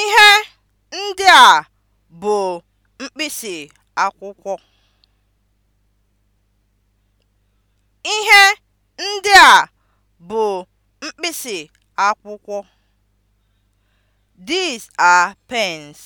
Ihe ndị a bụ mkpịsị akwụkwọ. Ihe ndị a bụ mkpịsị akwụkwọ. These are pens.